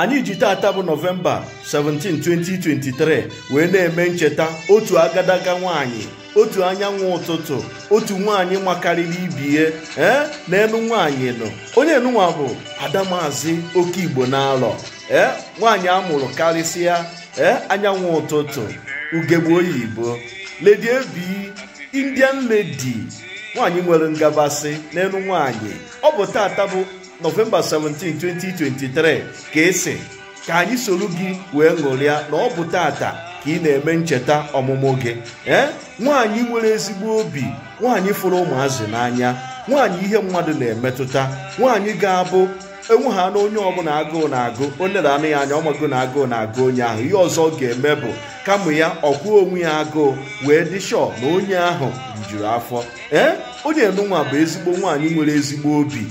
anyị ji taata bụ nọvemba 17 2023 wee na-eme ncheta otu agadaga nwanyị otu anyanwụ ụtụtụ otu nwaanyị makarịrị ibie ee eh, naelu nwaanyị nọ onye nụnwa bụ adamazi oke igbo na-alọ ee eh, nwaanyị amụrụ karịsịa ee eh, anyanwụ ụtụtụ ugegbe oyibo ledi ebi indian ledi nwaanyị nwere ngabasị n'elu nwaanyị ọ bụ taata bụ nọvemba 17 2023 ka esi ka anyị soro gị wee ṅụrịa na ọ bụ tata ka ị na-eme ncheta ọmụmụ gị ee nwaanyị nwere ezigbo obi nwaanyị fụrụ ụmụazị n'anya nwaanyị ihe mmadụ na-emetụta nwaanyị ga-abụ enweha na onye ọbụla agụụ na-agụ onye na-anụ ya anya ọmago na agụụ na-agụ onye ahụ ihe ọzọ ọ ga-eme bụ kama ya ọkwụo onwe ya agụụ wee dị shọ na onye ahụ rijuru afọ ee onye enunwa bụ ezigbo nwaanyị nwere ezigbo obi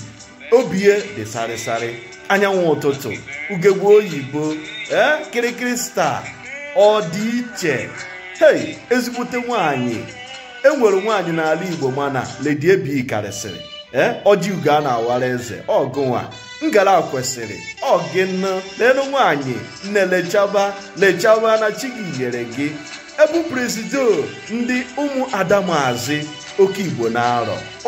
obie dị sarịsarị anyanwụ ụtụtụ ugegbe oyibo ee eh, kịrịkịrị star ọ dị iche hei ezigbute nwanyị enwere nwanyị n'ala igbo mana ledi ebi karịsịrị ee eh, ọjị ugo a na-awara eze ọgụnwa ngara kwesịrị na n'elu nwanyị nne lechaba lechaba na chigi nyere gị ebu presido ndị ụmụ ada oke igbo na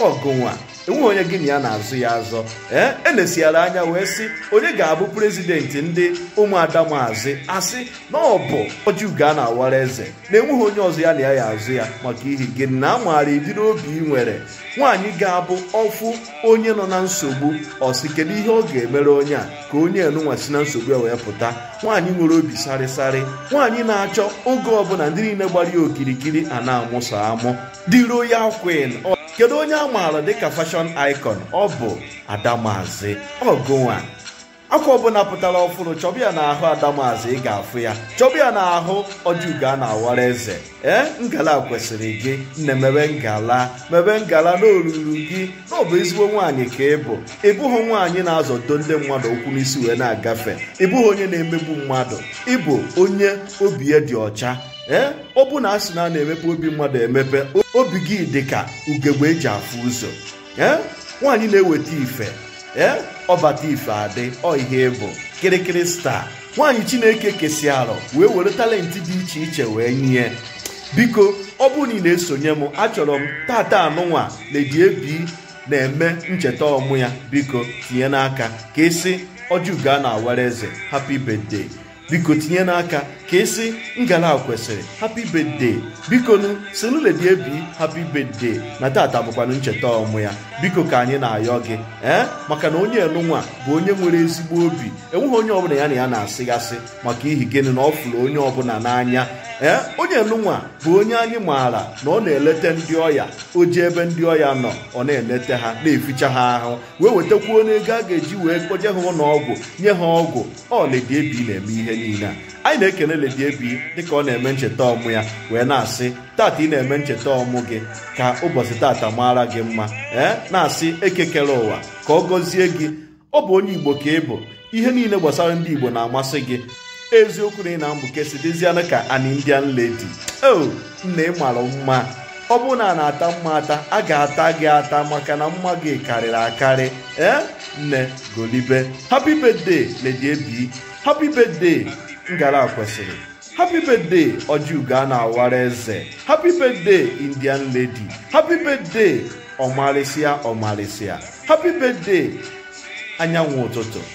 ọgụnwa enweghị onye gị na ya na-azụ ya azọ ee eh? elesiara anya wee sị onye ga-abụ prezidenti ndị ụmụada maazị asị na ọ bụ ojiugo na-awara eze na enweghị onye ọzọ ya na ya ya azụ ya maka ihi gị na a maara obi ị nwere nwaanyị ga-abụ ọfụ onye nọ na nsogbu ọsị kedu ihe ọ ga-emere onye a ka onye enunwa si na nsogbu ya wee pụta nwaanyị nwere obi sarịsarị nwaanyị na-achọ oge ọbụla ndị niile gbara ya okirikiri a na-amụso amụ diro ya kwin kedu onye a maara dịka fashion icon ọ bụ adamazi ọgụnwa akwa ọbụla pụtara ọfụrụ chọbịa ya n'ahụ adamazi ị ga-afụ ya chọbịa ya n'ahụ ọjụga a na-awara eze ee ngala kwesịrị gị nne mebe ngala mebe ngala na gị na ọbụ ezigbo nwaanyị ka ị bụ ịbụghị nwaanyị na-azọdo ndị mmadụ okwu n'isi wee na-agafe ịbụghị onye na-emegbu mmadụ ịbụ onye obi ya dị ọcha ee eh? ọ bụ na a sị na a na-emepe obi mmadụ emepe obi gị dị ka ugegbe eji afụ ụzọ ee eh? nwaanyị na-eweta ife ee eh? ọbata ife adị ọ ihe ịbụ kịrịkịrị staa nwaanyị chineke kesi arọ wee were talenti dị iche iche wee nye biko ọ bụrụ na esonye m achọrọ m tata anụnwa na Ab na-eme ncheta ọmụ ya biko tinye n'aka ka esi ọjụga na awara eze happy biko tinye n'aka ka esi ngala kwesịrị happy birthday bikonu seluledi ebi happy birthday na tata bụkwana ncheta ọmụ ya biko ka anyị na-ayọ gị ee eh? maka na onye enunwa bụ onye nwere ezigbo obi enweghị onye ọbụla ya na ya na-asịgasị maka ihi gịnị na ọ fụrụ onye ọbụla n'anya ee onye nụnwa bụ onye anyị maara na ọ na-eleta ndị ọya o ji ebe ndị ọya nọ ọ na eleta ha na-eficha ha ahụ wee wetakwuo n'ego a ga-eji wee kpoje ha ụlọọgwụ nye ha ọgwụ ọ Lady Ebi na-eme ihe niile anyị na-ekene Lady Ebi dịka ọ na-eme ncheta ọmụ ya wee na-asị tata ị na-eme ncheta ọmụ gị ka ụbọchị tata mara gị mma ee na-asị ekekere ụwa ka ọ gọzie gị ọ bụ onye Igbo ka ị bụ ihe niile gbasara ndị Igbo na-amasị gị eziokwu na ị na mgbuke si dịzianụ ka an indian lady o oh, nna ị mara mma ọ bụrụ na a na-ata mma ata a ga-ata gị ata maka na mma gị karịrị akarị ee nne golibe happy birthday lady ebi happy birthday ngara kwesịrị happy birthday ojiugo na awara eze happy birthday indian lady happy birthday ọmarịsịa ọmarịsịa happy birthday anyanwụ ụtụtụ